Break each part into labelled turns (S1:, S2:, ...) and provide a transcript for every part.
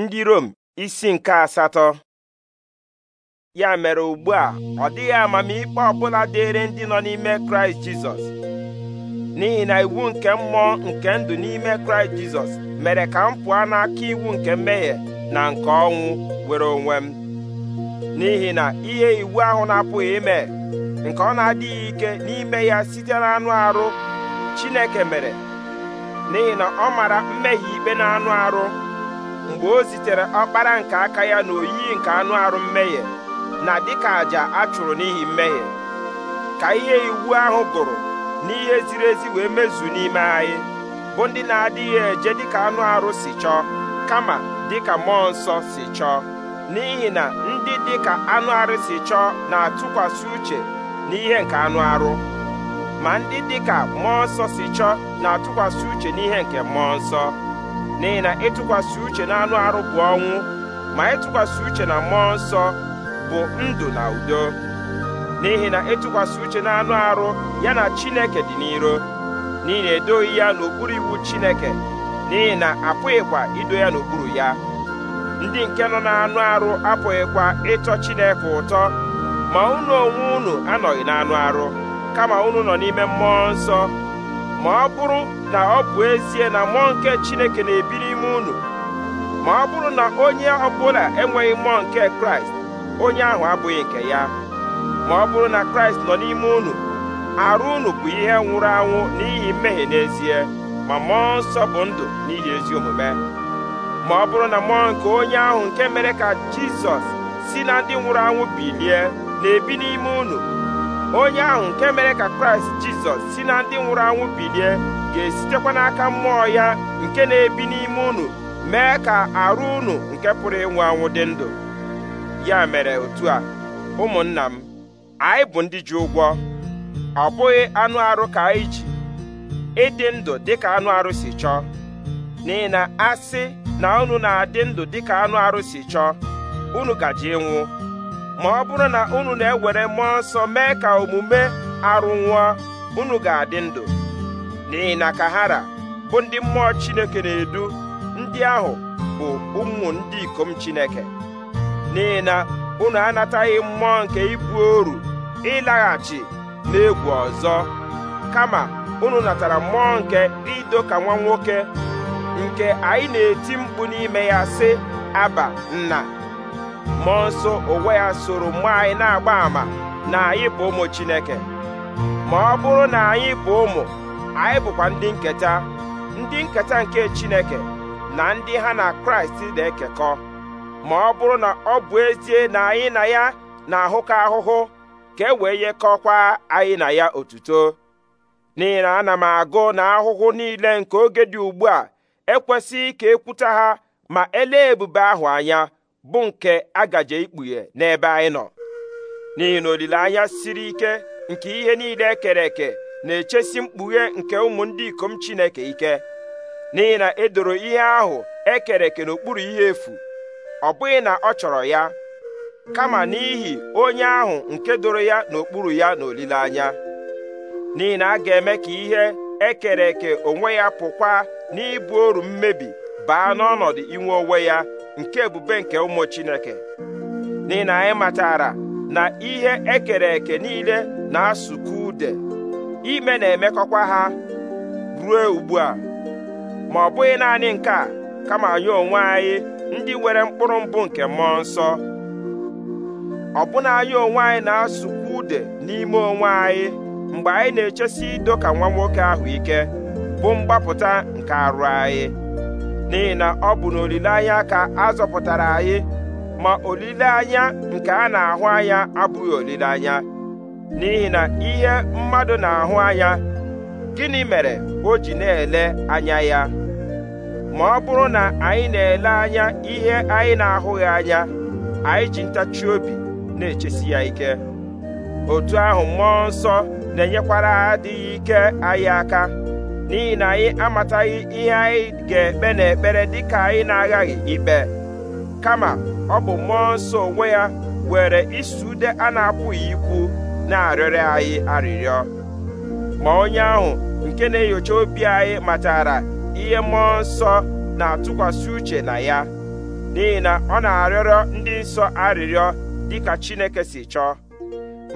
S1: ndị Rom isi nke asatọ ya mere ugbu a ọ dịghị amamikpe ọbụla dịịrị ndị nọ n'ime kraịst jizọs n'ihi na iwu nke mmụọ nke ndụ n'ime kraịst jizọs mere ka m pụọ n'aka iwu nke mmehie na nke ọnwụ were onwe m n'ihi na ihe iwu ahụ na-apụghị ime nke ọ na-adịghị ike n'ime ya site n'anụ arụ chineke mere n'ihi na ọ mara mmehie ikpe n'anụ arụ mgbe o zitere ọkpara nke aka ya na oyiyi nke anụ arụ mmehie na dịka àjà a chụrụ n'ihi mmehie ka ihe iwu ahụ gụrụ n'ihe ziri ezi wee mezu n'ime anyị bụ ndị na-adịghị eje dịka anụ arụ si chọọ kama dịka mmụọ nsọ si chọọ n'ihi na ndị dịka anụ arụ si chọọ na-atụkwasị uche n'ihe nke anụ arụ ma ndị dịka mmụọ nsọ si chọọ na-atụkwasị uche n'ihe nke mmụọ nsọ n'ihi na ịtụkwasị uche na anụ arụ bụ ọnwụ ma ịtụkwasị uche na mmụọ nsọ bụ ndụ na udo n'ihi na ịtụkwasị uche na anụ arụ ya na Chineke dị n'iro n'ihi na edoghị ya n'okpuru iwu Chineke n'ihi na apụghịkwa ido ya n'okpuru ya ndị nke nọ n'anụ arụ apụghịkwa ịtọ Chineke ụtọ ma unu onwe unu anọghị n'anụ arụ kama unu nọ n'ime mmụọ nsọ ma ọ bụrụ na ọ bụ ezie na mmụọ nke Chineke na-ebi n'ime unu ma ọ bụrụ na onye ọbụla enweghị mmụọ nke Kraịst onye ahụ abụghị nke ya ma ọ bụrụ na Kraịst nọ n'ime unu arụ unu bụ ihe nwụrụ anwụ n'ihi mmehie n'ezie ma mmụọ nsọ bụ ndụ n'ihi ezi omume ma ọ bụrụ na mmụọ nke onye ahụ nke mere ka Jizọs si na ndị nwụrụ anwụ bilie na-ebi n'ime unu onye ahụ nke mere ka kraịst jizọs si na ndị nwụrụ anwụ bilie ga-esitekwa n'aka mmụọ ya nke na-ebi n'ime unu mee ka arụ unu nke pụrụ ịnwụ anwụ dị ndụ ya mere otu a ụmụnna m anyị bụ ndị ji ụgwọ ọ bụghị anụ arụ ka anyị ji ịdị ndụ dịka anụ arụ si chọọ n'ihi na asị na unu na-adị ndụ dịka anụ arụ si chọọ unu gaje ịnwụ ma ọ bụrụ na unu na-ewere mmụọ nsọ mee ka omume arụ nwụọ unu ga-adị ndụ n'ihi na kahara bụ ndị mmụọ Chineke na-edu ndị ahụ bụ ụmụ ndị ikom Chineke n'ihi na unu anataghị mmụọ nke ibu oru ịlaghachi n'egwu ọzọ kama unu natara mmụọ nke ido ka nwa nwoke nke anyị na-eti mkpu n'ime ya sị aba nna mmụọ nsọ onwe ya soro mma anyị na-agba àmà na anyị bụ ụmụ Chineke ma ọ bụrụ na anyị bụ ụmụ anyị bụkwa ndị nketa ndị nketa nke Chineke na ndị ha na Kraịst na-ekekọ ma ọ bụrụ na ọ bụ ezie na anyị na ya na-ahụkọ ahụhụ ka e wee yekọkwa anyị na ya otuto n'ihi na ana m agụ na ahụhụ niile nke oge dị ugbu a ekwesịghị ka ekwuta ha ma elee ebube ahụ anya bụ nke agaje ikpughe n'ebe anyị nọ n'ihi na olileanya siri ike nke ihe niile ekere eke na-echesi mkpughe nke ụmụ ndị ikom Chineke ike n'ihi na edoro ihe ahụ ekere eke n'okpuru ihe efu ọ bụghị na ọ chọrọ ya kama n'ihi onye ahụ nke doro ya n'okpuru ya n'olileanya n'ihi na a ga-eme ka ihe ekere eke onwe ya pụkwa n'ibu oru mmebi baa n'ọnọdụ inwe onwe ya nke ebube nke ụmụ Chineke n'ihi na anyị matara na ihe ekere eke niile na-asụkọ ude ime na-emekọkwa ha ruo ugbu a ma ọ bụghị naanị nke a kama anyị onwe anyị ndị nwere mkpụrụ mbụ nke mmụọ nsọ ọbụna anyị onwe anyị na-asụkwa ude n'ime onwe anyị mgbe anyị na-echesi ido ka nwa nwoke ahụ ike bụ mgbapụta nke arụ anyị n'ihi na ọ bụ n'olileanya ka a zọpụtara anyị ma olileanya nke a na-ahụ anya abụghị olileanya n'ihi na ihe mmadụ na-ahụ anya gịnị mere o ji na-ele anya ya ma ọ bụrụ na anyị na-ele anya ihe anyị na-ahụghị anya anyị ji ntachi obi na-echesi ya ike otu ahụ mmụọ nsọ na-enyekwara adịghị ike anyị aka n'ihi na anyị amataghị ihe anyị ga-ekpe n'ekpere dịka anyị na-aghaghị ikpe kama ọ bụ mmụọ nsọ onwe ya were isi ude a na-apụghị ikwu na arịrị anyị arịrịọ ma onye ahụ nke na-enyocha obi anyị matara ihe mmụọ nsọ na-atụkwasị uche na ya n'ihi na ọ na-arịọrọ ndị nsọ arịrịọ dịka Chineke si chọọ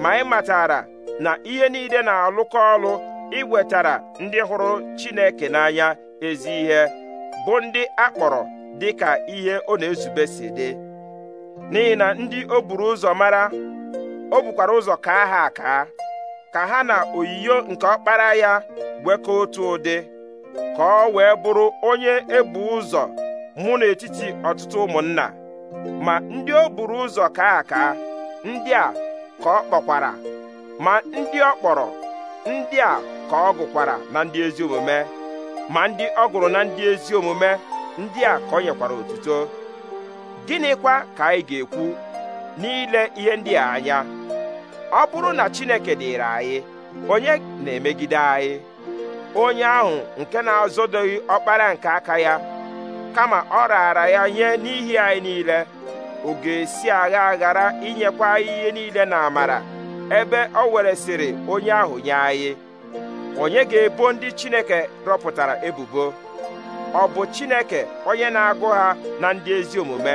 S1: ma anyị matara na ihe niile na-alụkọ ọlụ i iwetara ndị hụrụ Chineke n'anya ezi ihe bụ ndị akpọrọ dịka ihe ọ na-ezube si dị n'ihi na ndị o buru ụzọ mara o bukwara ụzọ ka ha aka ka ha na oyiyo nke ọkpara ya ka otu ụdị ka ọ wee bụrụ onye ebu ụzọ mụ n'etiti ọtụtụ ụmụnna ma ndị o buru ụzọ kaa aka ndị a ka ọ kpọkwara ma ndị ọ kpọrọ ndị a ka ọ gụkwara na ndị ezi omume ma ndị ọ gụrụ na ndị ezi omume ndị a ka ọ nyekwara otuto gịnịkwa ka anyị ga-ekwu n'ile ihe ndị a anya ọ bụrụ na Chineke dịịrị anyị onye na-emegide anyị onye ahụ nke na-azọdoghị ọkpara nke aka ya kama ọ raara ya nye n'ihi anyị niile ọ ga-esi agha aghara inyekwa anyị ihe niile na amara ebe o weresịrị onye ahụ nye anyị onye ga-ebo ndị Chineke rọpụtara ebubo ọ bụ Chineke onye na-agụ ha na ndị ezi omume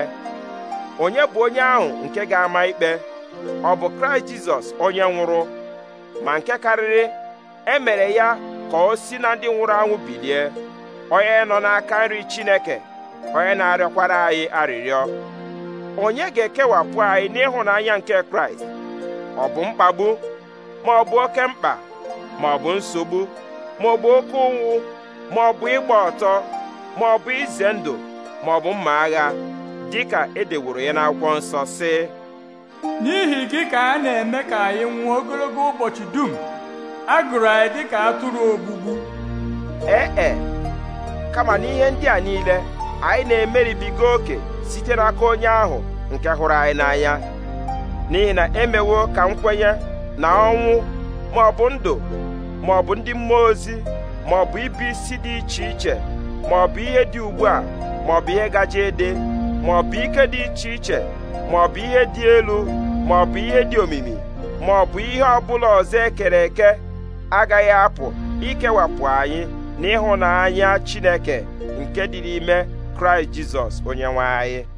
S1: onye bụ onye ahụ nke ga-ama ikpe ọ bụ Kraịst Jizọs onye nwụrụ ma nke karịrị emere ya ka o si na ndị nwụrụ anwụ bilie onye nọ n'aka nri Chineke onye na-arịọkwara anyị arịrịọ onye ga-ekewapụ anyị n'ịhụnanya nke Kraịst ọ bụ mkpagbu ma ọ bụ oke mkpa ma ọ bụ nsogbu ma ọ bụ oke ụnwụ ma ọ bụ ịgba ọtọ ma ọ bụ ize ndụ ma ọ bụ mma agha dịka edeworo ya n'akwụkwọ nsọ sị n'ihi gị ka a na-eme ka anyị nwụọ ogologo ụbọchị dum a gụrụ anyị dịka atụrụ ogbugbu ee e kama n'ihe ndị a niile anyị na-emeribiga oke site n'aka onye ahụ nke hụrụ anyị n'anya n'ihi na emewo ka nkwenye na ọnwụ maọbụ ndụ maọbụ ndị mmụọ ozi maọbụ ibi isi dị iche iche maọbụ ihe dị ugbu a maọbụ ihe gaje ede maọbụ ike dị iche iche maọbụ ihe dị elu maọbụ ihe dị omimi maọbụ ihe ọbụla ọzọ ekere eke agaghị apụ ikewapụ anyị n'ịhụnanya Chineke nke dị n'ime Kraịst Jizọs onyenwe anyị